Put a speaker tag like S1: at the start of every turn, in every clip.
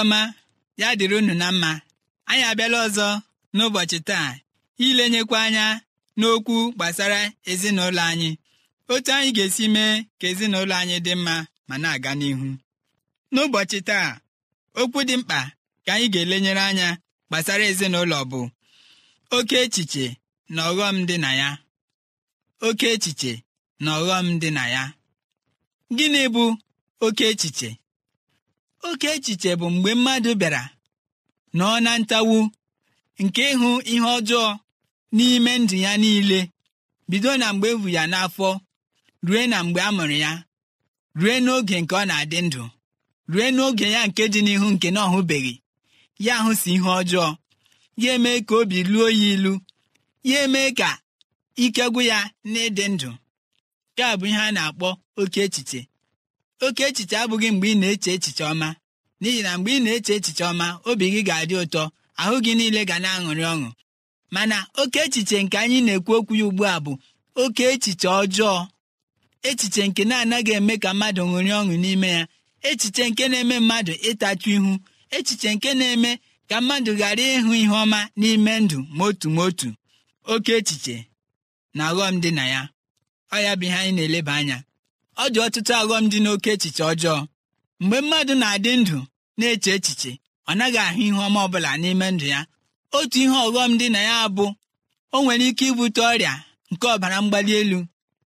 S1: ọma ya dịrị unu na mma anyị abịala ọzọ n'ụbọchị taa ilenyekwa anya n'okwu gbasara ezinụlọ anyị otu anyị ga-esi mee ka ezinụlọ anyị dị mma ma na-aga n'ihu n'ụbọchị taa okwu dị mkpa ka anyị ga-elenyere anya gbasara ezinụlọ bụ oke echiche na ọghọm dị na ya oke echiche na ọghọm dị na ya gịnị bụ oke echiche oke echiche bụ mgbe mmadụ bịara nọọ na ntawu nke ịhụ ihe ọjọọ n'ime ndụ ya niile bido na mgbe ebu ya n'afọ rue na mgbe a mụrụ ya rue n'oge nke ọ na-adị ndụ rue n'oge ya nke dị n'ihu nke na ọhụbeghị ya hụsi ihe ọjọọ ya eme ka obi luo ya ilu ya eme ka ike gwụ ya n'ịdị ndụ nke a bụ ihe a na-akpọ oke echiche oke echiche abụghị mgbe ị na-eche echiche ọma n'ihi na mgbe ị na-eche echiche ọma obi gị ga-adị ụtọ ahụ gị niile ga na-aṅụrị ọṅụ mana oke echiche nke anyị na-ekwu okwu ya ugbu a bụ oke echiche ọjọọ echiche nke na-anaghị eme ka mmadụ ṅụrị ọṅụ n'ime ya echiche nke na-eme mmadụ ịtachu ihu echiche nke na-eme ka mmadụ ghara ịhụ ihe ọma n'ime ndụ ma otu ma otu oke echiche na aghọm dị na ya ọ ya bụ ihe anyị na-eleba anya ọ dị ọtụtụ aghọm dị n'oke echiche ọjọọ mgbe mmadụ na-adị ndụ na-eche echiche ọ naghị ahụ ihe ọma ọbụla n'ime ndụ ya otu ihe ọghọm dị na ya bụ o nwere ike ibute ọrịa nke ọbara mgbali elu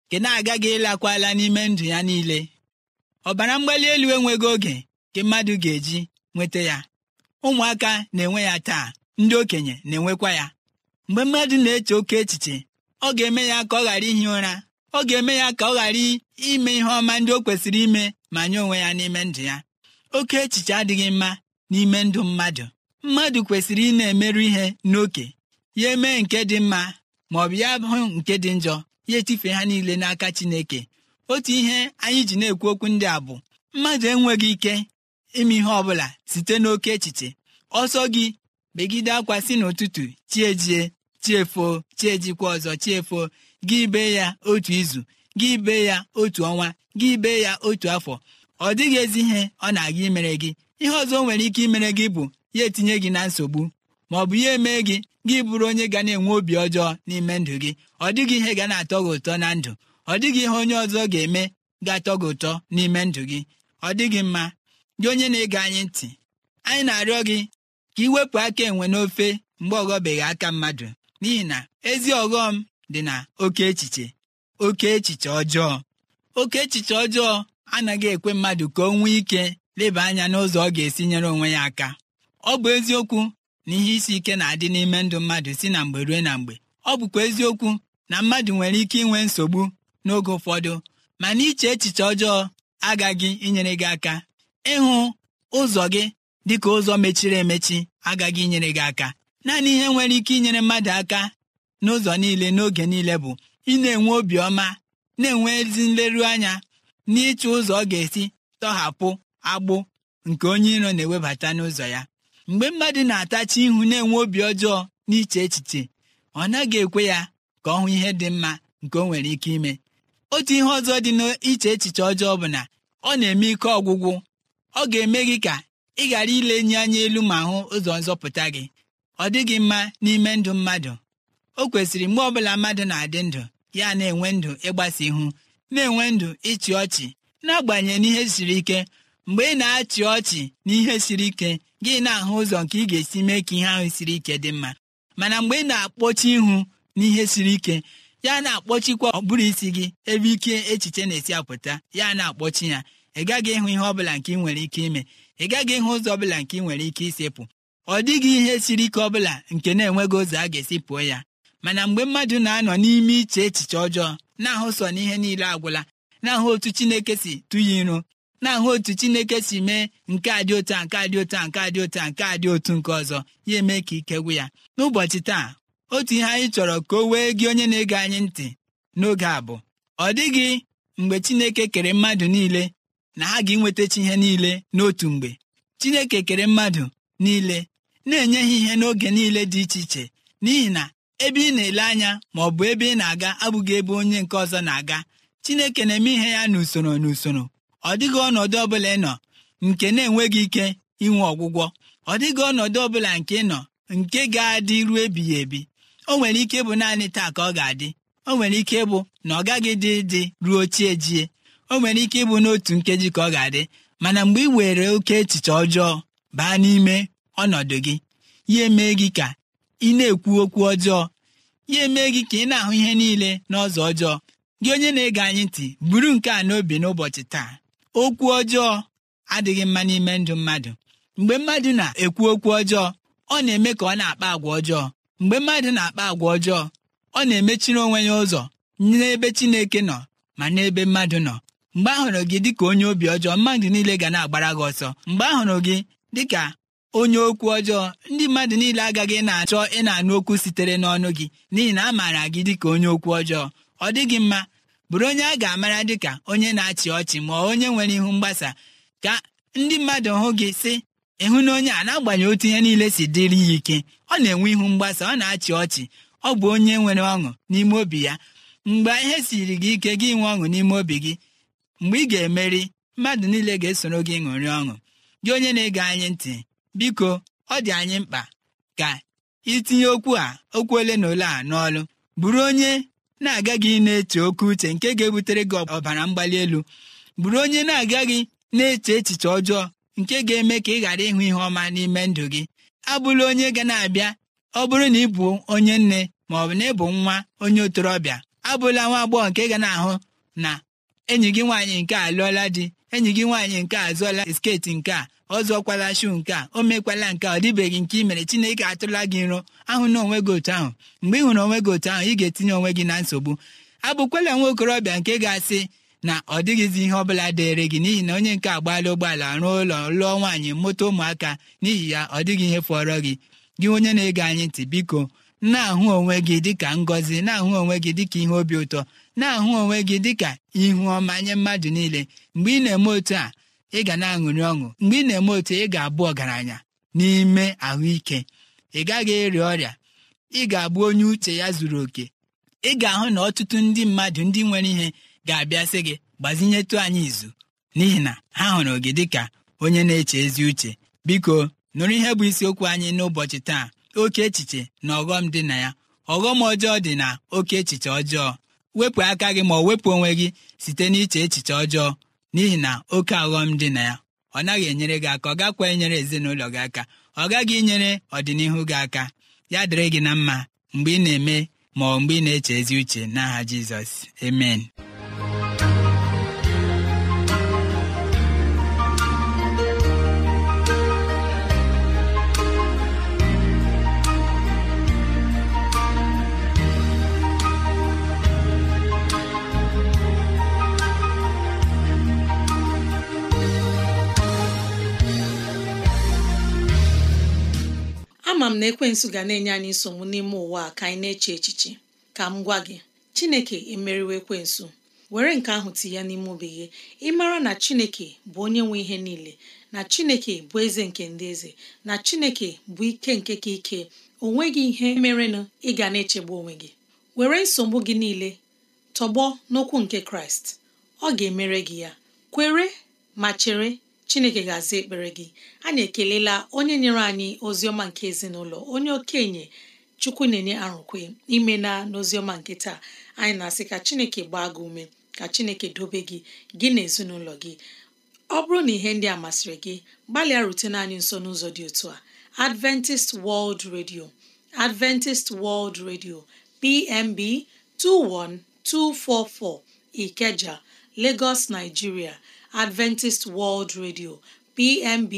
S1: nke na-agaghị ịlakwala n'ime ndụ ya niile ọbara mgbali elu enweghị oge nke mmadụ ga-eji nweta ya ụmụaka na-enwe ya taa ndị okenye na-enwekwa ya mgbe mmadụ na-eche oke echiche ọ ga-eme ya ka ọ ghara ihi ụra ọ ga-eme ya ka ọ ghara ime ihe ọma ndị o kwesịrị ime ma nye onwe ya n'ime ndụ ya oke echiche adịghị mma n'ime ndụ mmadụ mmadụ kwesịrị ị na-emerụ ihe n'oke ya emee nke dị mma ma ọ bụ ya hụ nke dị njọ ya etifee ha niile n'aka Chineke otu ihe anyị ji na-ekwu okwu ndị a bụ mmadụ enweghị ike ime ihe ọ bụla site n'oke echiche ọsọ gị begide akwa si n'ụtụtụ chi ejie chiefuo chiejikwa ọzọ chiefuo gị bee ya otu izu gị bee ya otu ọnwa gị bee ya otu afọ ọ dịghị ezi ihe ọ na-aga imere gị ihe ọzọ o nwere ike imere gị bụ ya etinye gị na nsogbu ma ọ bụ ya emee gị gị bụrụ onye ga na-enwe obi ọjọọ n'ime ndụ gị ọ dịghị ihe ga na-atọ gị ụtọ na ndụ ọ dịghị ihe onye ọzọ ga-eme ga-atọ gị ụtọ n'ime ndụ gị ọ dịghị mma gị onye na-ege anyị ntị anyị na-arịọ gị ka ị wepụ aka enwe n'ofe mgbe ọ ghọbeghị aka mmadụ n'ihi na ezi ọghọm dị na oke echiche oke echiche ọjọọ oke echiche ọjọọ anaghị ekwe mmadụ ka o nwee ike leba anya n'ụzọ ọ ga-esi nyere onwe ya aka ọ bụ eziokwu na ihe isi ike na-adị n'ime ndụ mmadụ si na mgbe ruo na mgbe ọ bụkwa eziokwu na mmadụ nwere ike inwe nsogbu n'oge ụfọdụ mana iche echiche ọjọọ agaghị inyere gị aka ịhụ ụzọ gị dịka ụzọ mechiri emechi agaghị inyere gị aka naanị ihe nwere ike inyere mmadụ aka n'ụzọ niile n'oge niile bụ ị na-enwe obiọma na-enwe ezi nleru anya n'ịchụ ụzọ ọ ga-esi tọhapụ agbụ nke onye iro na-ewebata n'ụzọ ya mgbe mmadụ na-atachi ihu na-enwe obi ọjọọ n'iche echiche ọ naghị ekwe ya ka ọ hụ ihe dị mma nke o nwere ike ime otu ihe ọzọ dị n'iche echiche ọjọọ bụ na ọ na-eme ike ọgwụgwụ ọ ga-eme gị ka ị ghara ile enyi anya elu ma hụ ụzọ nzọpụta gị ọ dịghị mma n'ime ndụ mmadụ o kwesịrị mgbe ọbụla mmadụ na-adị ndụ ya na-enwe ndụ ịgbasa ihu na-enwe ndụ ịchị ọchị n'agbanyeghị n'ihe siri ike mgbe ị na-achị ọchị na ihe siri ike gị na-ahụ ụzọ nke ị ga-esi mee ka ihe ahụ siri ike dị mma mana mgbe ị na-akpọchi ihu n'ihe siri ike ya na-akpọchikwa ọbụrụ isi gị ebe ike echiche na-esi apụta ya na-akpọchi ya ị gaghị ịhụ ihe ọbụla nke ị nwere ike ime ị gaghị ịhụ ụzọ ọbụla nke ị nwere ike isepụ ọ dịghị ihe siri ike ọbụla nke na-enweghị ụzọ a ga-esi pụọ ya mana mgbe mmadụ na-anọ n'ime iche echiche ọjọọ na-ahụ sọ na ihe niile agwụla na-ahụ otu chineke si tụye iru na-ahụ otu chineke si mee nke a dị otu a nke a dị otu a nke a dị otu a nke a dị otu nke ọzọ ya eme ka ike gwụ ya n'ụbọchị taa otu ihe anyị chọrọ ka o wee gị onye na-ege anyị ntị n'oge a bụ ọ dịghị mgbe chineke kere mmadụ niile na ha ga-enwetachi ihe niile n'otu mgbe chineke kere mmadụ niile na-enye ha ihe n'oge niile dị iche iche n'ihi na ebe ị na-ele anya ma ọ bụ ebe ị na-aga abụghị ebe onye nke ọzọ na-aga chineke na-eme ihe ya n'usoro n'usoro ọ dịghị ọnọdụ ọbụla ị nọ nke na-enweghị ike inwe ọgwụgwọ ọ dịghị ọnọdụ bụla nke ị nọ nke ga-adị ruo ebighị ebi o nwere ike ịbụ naanị taa ka ọ ga-adị o nwere ike ịbụ na ọ gaghị dị dị ruo chi jie o nwere ike ịbụ n'otu nkeji ka ọ ga-adị mana mgbe ị were oke echiche ọjọọ baa n'ime ọnọdụ gị ya emee gị ka ị na-ekwu okwu ọjọọ ya emee gị ka ị na-ahụ ihe niile n'ọzọ ọjọọ gị onye na-ege anyị ntị buru nke a n'obi n'ụbọchị taa okwu ọjọọ adịghị mma n'ime ndụ mmadụ mgbe mmadụ na-ekwu okwu ọjọọ ọ na-eme ka ọ na-akpa agwa ọjọọ mgbe mmadụ na-akpa agwa ọjọọ ọ na-emechiri onwe ya ụzọ n'ebe Chineke nọ ma n'ebe mmadụ nọ mgbe ahụrụ gị dịka onye obi ọjọọ mmadụ niile ga na-agbara gị ọsọ mgbe a hụrụ gị dịka onye okwu ọjọọ ndị mmadụ niile agaghị na-achọ ị na-anụ okwu sitere n'ọnụ gị n'ihi na a maara gị dịka onye okwu ọjọọ ọ dịghị mma bụrụ onye a ga-amara dịka onye na-achị ọchị ma onye nwere ihu mgbasa ka ndị mmadụ hụ gị sị ịhụ na onye a na-agbanyeghị otu ihe niile si dịrị ya ike ọ na-enwe ihu mgbasa ọ na-achị ọchị ọ bụ onye nwere ọṅụ n'ime obi ya mgbe ihe siri gị ike gị nwee ọṅụ n'ime obi gị mgbe ị ga-emeri mmadụ niile ga-esoro gị ṅụrị ọṅụ gị onye na-ege anyị ntị biko ọ dị anyị mkpa ka itinye okwu a okwu ole na ole a n'ọlụ bụrụ onye na gị na-eche oke uche nke ga-ebutere gị ọbara mgbali elu bụrụ onye na aga gị na-eche echiche ọjọọ nke ga-eme ka ị ghara ịhụ ihe ọma n'ime ndụ gị abụla onye ga na-abịa ọ bụrụ na ị bụ onye nne ma ọ bụ na ịbụ nwa onye otorobịa. abụla nwa agbọghọ nke ga na-ahụ na enyi gị nwaanyị nke a lụọla di enyi gị nwaanyị nke a zụọla sketi nke a ọzọkwala shu nke a o mekwala nke a ọ dịbeghị nke ị mere chineke atụla gị nrọ ahụ na onwe gị otu ahụ mgbe ị hụrụ onwe gị otu ahụ ị ga-etinye onwe gị na nsogbu abụkwala nwa okorobịa nke ga-asị na ọ dịghịzi ihe ọbụla dịrị gị n'ihi na onye nke agbaala ụgbọala rụọ ụlọ lụọ nwaanyị moto ụmụaka n'ihi ya ọ dịghị ihe fọrọ gị gị onye na-ege anyị ntị biko na-ahụ onwe gị dịka ngọzi na-ahụ onwe gị dịka ihe obi ụtọ na-ahụ onwe gị dịka ihu ọma nye mmadụ niile mgbe ị na-eme otu a ị ga na-aṅụrị ọṅụ mgbe ị na-eme otu ị ga-abụ ọgaranya n'ime ahụike ị gaghị ịrịa ọrịa ị ga-abụ onye uche ya zuru oke ị ga-ahụ na ọtụtụ ndị mmadụ ndị nwere ihe ga-abịa sị gị gbazinyetụ anyị izu n'ihi na ha hụrụ gị dịka onye na-eche ezi uche biko nụrụ ihe bụ isiokwu anyị n'ụbọchị taa oke echiche na ọghọm dị na ya ọghọm ọjọọ dị na oke echiche ọjọọ wepụ aka gị ma ọ wepụ onwe gị site n'iche echiche ọjọọ n'ihi na oke aghọm dị na ya ọ naghị enyere gị aka ọ gakwa enyere ezinụlọ gị aka ọ gaghị inyere ọdịnihu gị aka ya dịrị gị na mma mgbe ị na-eme ma mgbe ị na-eche ezi uche n'aha Jizọs amen
S2: na ekwensụ ga na-enye anyị nsogbu n'ime ụwa ka anyị na-eche echiche ka m gwa gị chineke emeriwo ekwensu were nke ahụ ya n'ime obi gị ịmara na chineke bụ onye nwe ihe niile na chineke bụ eze nke ndị eze na chineke bụ ike nke ka ike o nweghị ihe merenụ ị ga na-echegbu onwe gị were nsogbu gị niile tọgbọ n'okwu nke kraịst ọ ga-emere gị ya kwere ma chere chineke ga-aza ekpere gị anyị ekelela onye nyere anyị oziọma nke ezinụlọ onye okenye chukwu na-enye arụkwe ime na n'oziọma nke taa anyị na-asị ka chineke gbaa gị ume ka chineke dobe gị gị na ezinụlọ gị ọ bụrụ na ihe ndị a masịrị gị gbalịa rutena anyị nso n'ụzọ dị otu a Adventist World Radio Adventist World Radio PMB 21244 Ikeja Lagos Nigeria Adventist World Radio PMB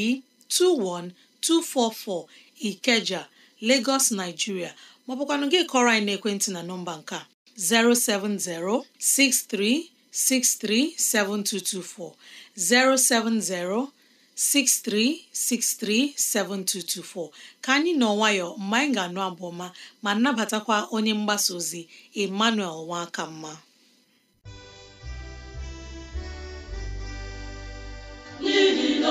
S2: 21244 Ikeja Lagos Nigeria maọbụkwanụ gị kọrọ anyị n'ekwentị na nọmba nke 070 6363 7224, ka anyị nọ nwayọ mgbe anyị ga-anụ abụọma ma nabatakwa onye mgbasa ozi Emmanuel Mma.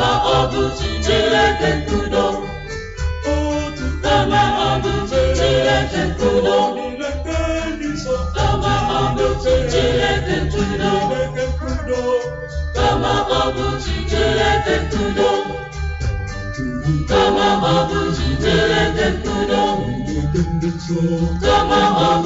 S3: kama ọ bụ Chineke nkudo kama ọ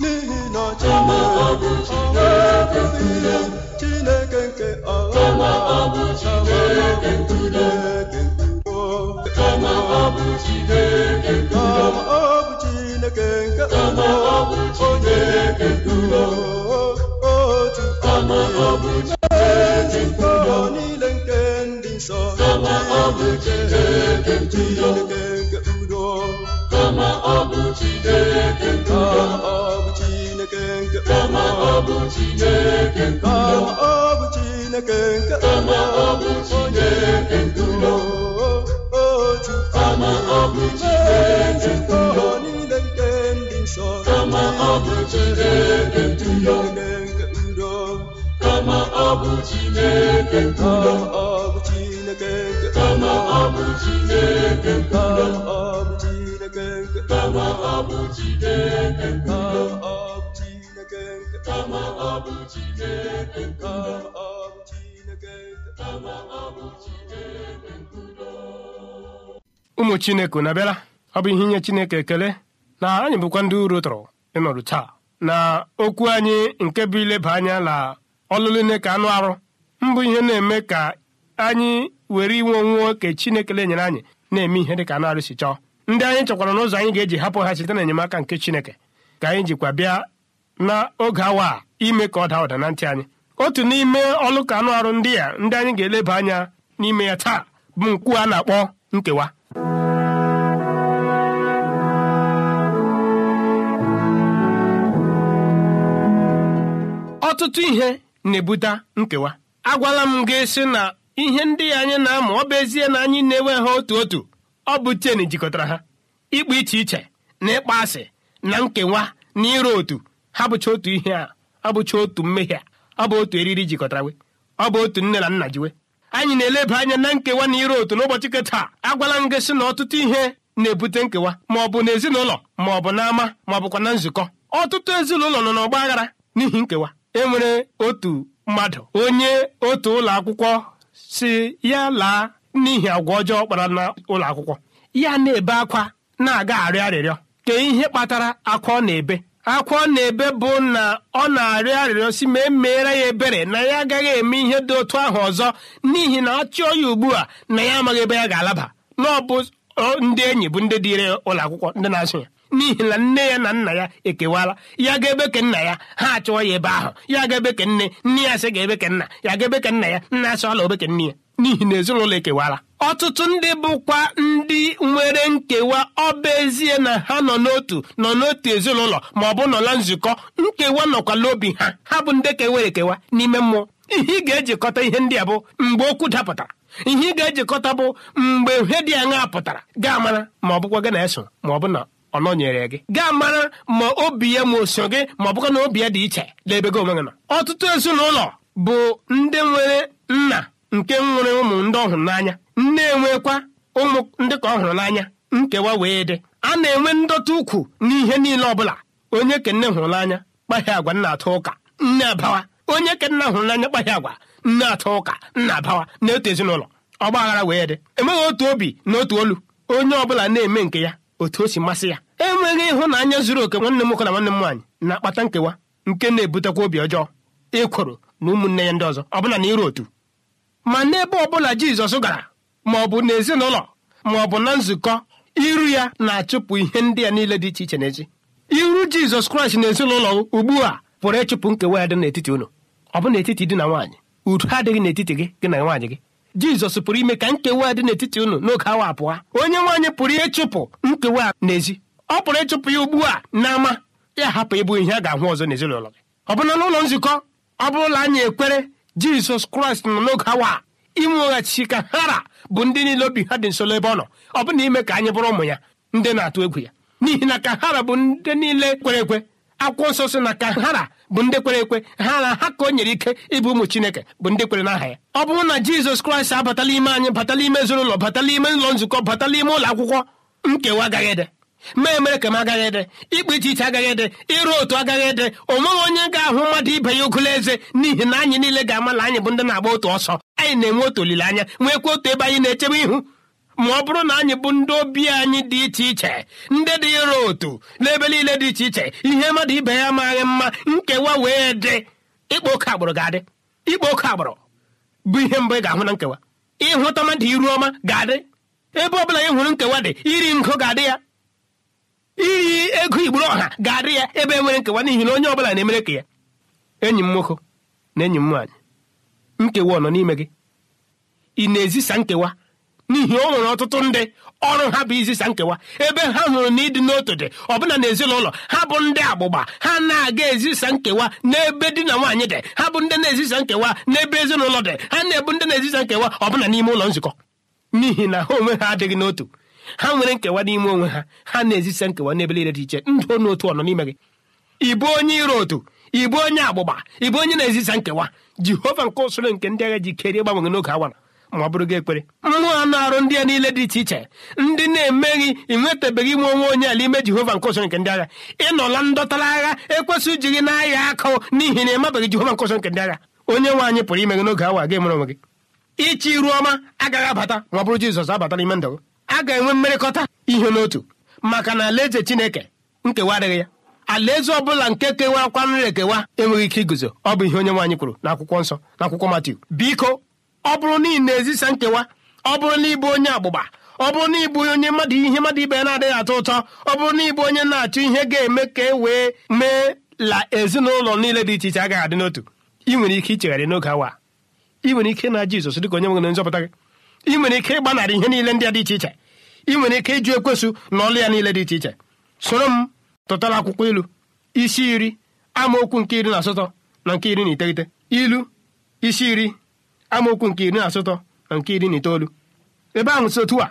S3: n'ihi na Kama ọ bụ Chineke nke ọ Chineke ọ niile nke kama ọ bụ Chineke nke ama ọ bụ Chineke otu ama ọ bụ Chineke nke ndị nsọ kama ọ bụ Chineke nke ndo kama ọ bụ kama ọ bụ Chineke Chineke ọ bụ ụmụ
S4: Chineke unu abịala ọ bụ ihe inye Chineke ekele na anyị bụkwa ndị uru tụrụ ịnọdụ taa na okwu anyị nke bụ ileba anya na ọlụlụ nne ka anụ arụ mbụ ihe na-eme ka anyị were inwe onwe chinekele Chineke enyere anyị na-eme ihe dị ka anụ arụ si chọọ ndị anyị chọkwara n'ụzọ anyị ga-eji hapụ ha site n'enyemaka nke Chineke ka anyị jikwa bịa n'oge awa a ime ka ọ daa ụda na ntị anyị otu n'ime ọlụ anụ arụ ndị a ndị anyị ga-eleba anya n'ime ya taa bụ nkwu a na-akpọ nkewa ọtụtụ ihe na-ebute nkewa agwala m gị sị na ihe ndị anyị na-amụ ọ bụ ezie na anyị na-enwe ha otu otu ọ bụ chen jikọtara ha ịkpa iche iche na ịkpa asị na nkewa na ịrụ otu abụcha otu ihe a abụcha otu mmehie a bụ otu eriri jikọtara we ọ bụ otu nne na nna jiwe anyị na-eleba anya na nkewa na ire otu n'ụbọchị keta agwala m gị na ọtụtụ ihe na-ebute nkewa ma ọ bụ ezinụlọ, ma ọ bụ n'ama ma ọ bụkwa na nzukọ ọtụtụ ezinụlọ nọ n'ọgba aghara n'ihi nkewa E nwere otu mmadụ onye otu ụlọ akwụkwọ si ya laa n'ihi agwa ọjọọ kpara n'ụlọ akwụkwọ ya na-ebe akwa na-aga arịọ arịrịọ ka ihe kpatara akwa ọ na-ebe akwa ọ na-ebe bụ na ọ na-arịọ arịrịọ si ma emeere ya ebere na ya agaghị eme ihe dị otu ahụ ọzọ n'ihi na ọ chọọ ya ugbu a na ya amaghị ebe ya ga-alaba na ọ bụ ndị enyi bụ ndị dịre ụlọ akwụkwọ ndị na-asụ ya n'ihi na nne ya na nna ya ekewala ya ga-ebe ke nna ya ha achọọ ya ebe ahụ ya ga-ebe nne nne ya sị ga-ebe nna ya ga-ebe ke nna ya nna asị ọla obeke nne ya n'ihi na ezinụlọ ekewala ọtụtụ ndị bụkwa ndị nwere nkewa ọba ezie na ha nọ n'otu nọ n'otu ezinụlọ ma ọ bụ nọla nzukọ nkewa nọkwala obi ha ha bụ ndị kewere ekewa n'ime mmụọ ihe ị ga-ejikọta ihe ndị a bụ mgbe okwu dapụtara ihe ị ga-ejikọta bụ mgbe ihe dị aṅa pụtara gaa ma ọ bụkwa gị eso ma ọ bụ na ọ nọnyere gị gaa ma obi ya ma oso gị ma ọ bụkwa na obi ya dị iche n'ebe gị onwe gị nọ ọtụtụ ezinụlọ bụ ndị nwere nna nke nwere ụmụ ndị ọhụrụ n'anya nne enwekwa ụmụ ndị ka ọ hụrụ n'anya nkewa wee dị a na-enwe ndọta ukwu n'ihe niile ọ bụla. onye kenne hụrụ n'anya kpaghị agwa nna atụ ụka nne abawa onye kenna hụrụ n'anya kpaghị agwa nne atụ ụka nna abawa na ezinụlọ ọgba wee dị enweghị otu obi na otu olu onye ọbụla na-eme nke ya otu o si masị ya enweghị ịhụnanya zuru oke nwanne m nwoke na nwanne m nwaanyị na-akpata nkewa nke na-ebutekwa obi ọjọọ ịkwụrụ na ụmụnne ya ndị ọzọ bụla na iru otu ma n'ebe bụla Jizọs gara ma ọ bụ n'ezinụlọ ma ọ bụ na nzukọ iru ya na-achụpụ ihe ndị a niile dị iche iche n'echi iru jizọs kraịst na ezinụlọ ugbu a pụrụ ịchụpụ nkewa ya dị n'etiti unu ọ bụ n'etiti dị na nwaanyị udo adịghị n'etiti gị gị na nwaanyị gị jizọs pụrụ ime ka nkewa dị n'etiti ụnụ n'oge awa apụa onye nwaanyị pụrụ ịchụpụ nkewa n'ezi ọ pụrụ ịchụpụ ya ugbu a n'ama ya hapụ ịbụ ihe a ga-ahụ ọzọ n'ezinụlọ gị ọ bụna n'ụlọ nzukọ ọ bụrụla anyị ekwere jizọs kraịst nọ n'oge awa inweghachi ka hara bụ ndị niile obi ha dị nso ebe ọ nọ ọ bụna ime ka anyị bụrụ ụmụ ya ndị na-atụ egwu ya n'ihi na ka hara bụ ndị niile kwere ekwe akwụkwọ nsọ sị na ka hara bụ ndị kwere ekwe ha na ha ka o nyere ike ịbụ ụmụ chineke bụ ndị kwere n'aha ya ọ bụrụ na jizọs kraịst abatala ime anyị batala ime ezinụlọ batala ime ụlọ nzukọ batala ime ụlọ akwụkwọ nkewa agaghị ede ma emere ka m agaghị ede ikpe iche iche agaghị ede ịrụ otu agaghị ede o nweghị onye ga-ahụ mmadụ ibe ya ogolo eze n'ihi na anyị niile ga-amala anyị bụ ndị na-agba otu ọsọ anyị na-enwe otu olileanya nwekwa otu ebe anyị na-echebe ihu ma ọ bụrụ na anyị bụ ndị obi anyị dị iche iche ndị dị ịrụ otu n'ebe niile dị iche iche ihe mmadụ ibe ya amaghị mma nkewa wee dị ịkpa oke agbụrụ ga-adị ịkpa oke agbụrụ bụ ihe mbụ ị ga-ahụ na nkewa ịhụta mmadụ iru ọma ga-adị ebe ọ bụla ị hụrụ nkewa dị iri ngo ga-adị ya iri ego igburu ọha ga-adị ya ebe nwere nkewa n'ihi na onye ọ bụla na-emere ka ya enyi m nwoke na enyi m nwaanyị nkewa ọ nọ n'ime gị ị na-ezisa nkewa n'ihi o nwere ọtụtụ ndị ọrụ ha bụ izisa nkewa ebe ha hụrụ na ịdị n'otu dị ọbụna n'ezinụlọ ha bụ ndị agbụgba ha na-aga ezisa nkewa n'ebe di na nwaanyị dị ha bụ ndị na-ezisa nkewa n'ebe ezinụlọ dị ha na-ebu ndị na-ezisa nkewa ọbụna n'ime ụlọ nzukọ n'ihi na ha onwe ha adịghị n'otu ha nwere nkewa n'ime onwe ha ha na-ezisa nkewa n'ebe niile dị iche ndụ onye otu ọnọ n'ime gị ịbụ onye iro otu ịbụ onye agbụgba ịbụ onye na-ezisa nkewa jehova nke usoro nke ndị agha ji kerie gbanwere n'oge awa ma ọ bụrụ gị ekpere mmụọ anụ arụ ndị a niile dị iche iche ndị na-emeghị ịnwetabeghị ime onwe onye ala ime jehova nke nke ndị agha ịnọla ndọtara agha ekwesịghị iji gị n'ahịa akụ n'ihi na ịmabeghị jehova nke nke ndị agha onye anyị pụrụ ime gị n'oge awa gị mere onwe gị ichi iru ọma agaghị abata ma ọ bụrụ jizọs abata n'ime ndụ gị a ga-enwe mmerịkọta ihe n'otu maka na alaeze chineke nkewa adịghị ya alaeze ọ bụla nke nri ekewa enweghị ike iguzo ọ bụ ihe onye nwaanyị kwuru akwụkwọ nsọ n'akwụkwọ Matiu biko ọ bụrụ na ị na-ezisa nkewa ọ bụrụ na ịbụ onye agbụgba ọ bụrụ na ịbụ onye mmadụ ihe mmadụ ibe na-adịghị atọ ụtọ ọ bụrụ na ịbụ onye na-achọ ihe ga-eme ka e wee mee la ezinụlọ niile dị iche iche agaghị adị n'otu ị nwere ike ichegharị n'oge awa ị nwere ike na Jizọs dịka onye nwere nzọpụta gị ị nwere ike ịgbanarị ihe niile ndị a dị iche iche ị nwere ike ịjụ ekwesụ na ọlụ ya niile dị iche iche soro m tụtara akwụkwọ ilu isi iri amaokwu nke iri na asatọ na nke iri na iteghete ilu isi iri amaokwu nke iri na asatọ na nke iri na itoolu ebe ahụ si a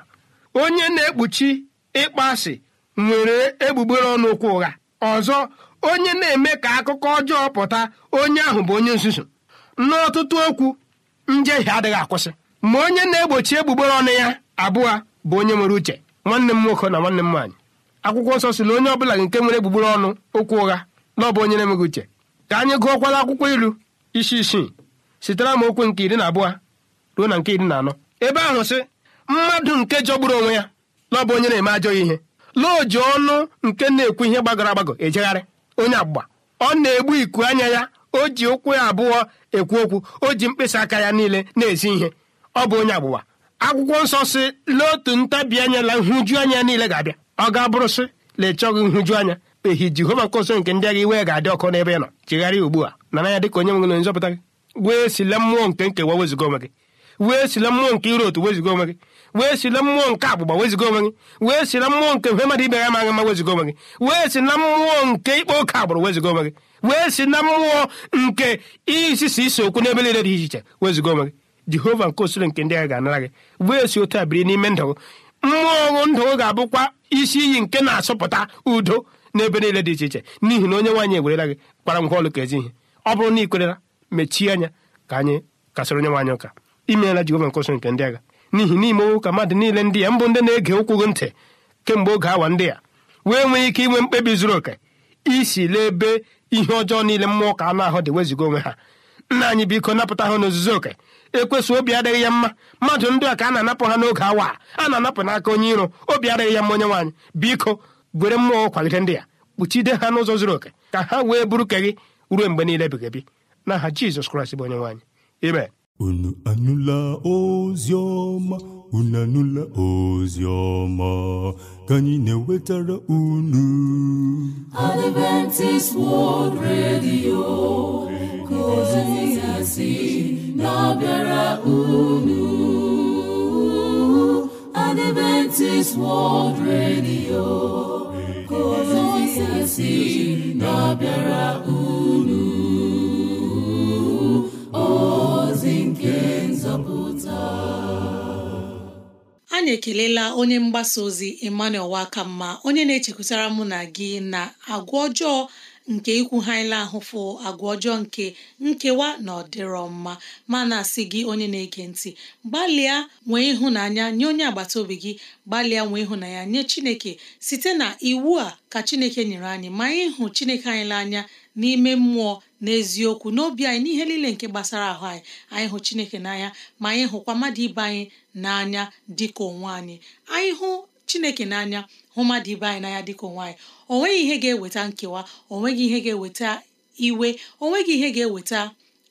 S4: onye na-ekpuchi ịkpọasị nwere egbugbere ọnụ okwu ụgha ọzọ onye na-eme ka akụkọ ọjọọ pụta onye ahụ bụ onye nzuzu n'ọtụtụ okwu njehie adịghị akwụsị ma onye na-egbochi egbugbere ọnụ ya abụọ bụ onye nwere uche nwanne m nwoke na nwanne m nwaanyị akwụkwọ nsọ si na onye ọbụla nke nwere egbugbere ọnụ okwu ụgha na ọ bụ onye na-enweghị uche ka anyị gụọkwala akwụkwọ ilu isi isii sitere m okwu nke iri na abụọ ruo na nke iri na anọ ebe ahụ sị mmadụ nke jọgburu onwe ya na ọ bụ onye na-eme ajọ ihe lụọ oji ọnụ nke na-ekwu ihe gbagọrọ agbagọ ejegharị onye agbụgba ọ na-egbu iku anya ya o ji ụkwụ ya abụọ ekwu okwu o ji mkpịsị aka ya niile na-ezi ihe ọ bụ onye agbụgba akwụkwọ nsọ si n'otu ntabi anya na nhụju anya niile ga-abịa ọ ga-abụrụ sị na ịchọghị nhụju anya ehi jehova nkọso nke ndị agha iwe ga-adị ọkụ n'ebe ị nọ chegharịa ugbu a nara ya dịka onye nwere na nzọpụta gị wee sila mmụọ nke nkewa weziga onwe gị wee sila mmụọ nke ire otu weziga onwe gị wee sila mmụọ nke agbụgba weziga onwe gị wee sila mmụọ nke mfe mmadụ ibe ya ma mma weziga onwe gị wee si na mmụọ nke ikpe oke agbụrụ weziga onwe gị wee si na mmụọ nke isisi isi okwu n'ebe niile dị iche iche weziga onwe gị jehova nke osoro nke ndị agha ga-anara gị wee si otu a biri n'ime ndụ mmụọ ndụ ga-abụkwa isi iyi nke na-asọpụta udo n'ebe niile dị iche iche n'ihi na onye nwaanyị ewerela gị kpara ngwa ọlụ ka ezi ihe ọ bụrụ na ị kwerela mechie anya ka anyị kasịrị onye nwaanyị ụka imeela jehova nke osoro nke ndị agha n'ihi na ime ụka mmadụ niile ndị ya mbụ ndị na-ege ụkwụ gị ntị kemgbe oge awa ndị ya wee nwee ike inwe mkpebi zuru oke isi ebe ihe ọjọọ niile mmụọ ka anụ ahụ dị wezuga onwe ha nna anyị biko napụta ha n'ozuzu oke ekwesị obi adịghị ya mma mmadụ ndị a ka a na-anapụ ha n'oge awa a na-anapụ n'aka onye iro obi adịghị ya mma onye nwaanyị biko gwere mmụọ kwalite ndị ya kpuchide ha n'ụzọ zuru oke ka ha wee bụrụ ka gị ruo mgbe niile na aha Jizọs Kraịst bụ onye nwaanyị ime unu anụla ozi ọma unu anụla ozi ọma
S3: ka anyị na-ewetara unu
S4: Adventist
S3: World Radio ka ozi ya si na-abịara unu Adventist World Radio si na-abịara unu ozi nke
S2: nzọpụta anyị ekelela onye mgbasa ozi Emmanuel Wakamma onye na-echekwutara mụ na gị na agwa ọjọọ nke ikwu ikwughaila ahụfụ agwa ọjọọ nke nkewa na ọdịrọ mma na asị gị onye na-ege ntị gbalịa nwee ịhụnanya nye onye agbata obi gị gbalịa nwee ịhụnanya nye Chineke site na iwu a ka Chineke nyere anyị ma anyị hụ Chineke anyị n'anya n'ime mmụọ n'eziokwu n'obi anyị n'ihe niile nke gbasara ahụ anyị anyị hụ Chineke n'anya ma anyị hụkwa mmadụ ibe anyị n'anya dịka onwe anyị anyị hụ chineke n'anya hụ mmadụ ibe anyị n'anya dịka onwe anyị o nweghị ihe ga-eweta nkewa o nweghị ihe ga-eweta iwe o nweghị ihe ga-eweta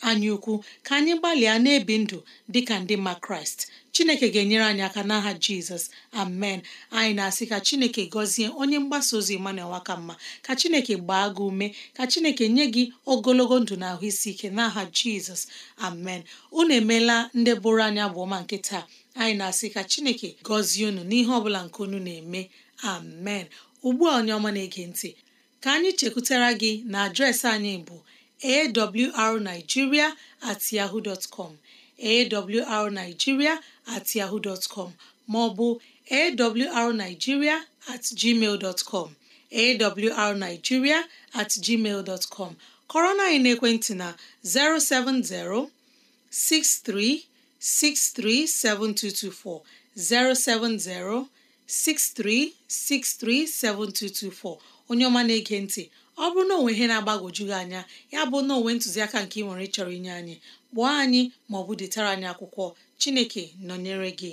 S2: anyị ukwu ka anyị gbalịa na-ebi ndụ dịka ndị mma kraịst chineke ga-enyere anyị aka n'aha jizọs amen anyị na-asị ka chineke gọzie onye mgbasa ozi emmanuel wakamma ka chineke gbaa gị ume ka chineke nye gị ogologo ndụ na ahụ isi ike n'aha jizọs amen unu emeela ndị bụrụ anya bụ nke taa anyị na-asị ka chineke gọzie unu n'ihe ọbụla nke unu na-eme amen ugbu a onye ọma na-ege ntị ka anyị chekwutara gị na adresị anyị bụ awrnigeria at yahoo com awrnigeria at com ma ọ bụ at gmail com awrnigeria at gmail com kọrọ na anyị n'ekwentị na 070 63 637224 070 7224 onye ọma na-ege ntị ọ bụrụ na onwe ihe na agbagojugị anya ya bụ na onwe ntụziaka nke ị nwere ịchọrọ inye anyị kpọọ anyị maọbụ detara anyị akwụkwọ Chineke nọnyere gị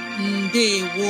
S2: ndewo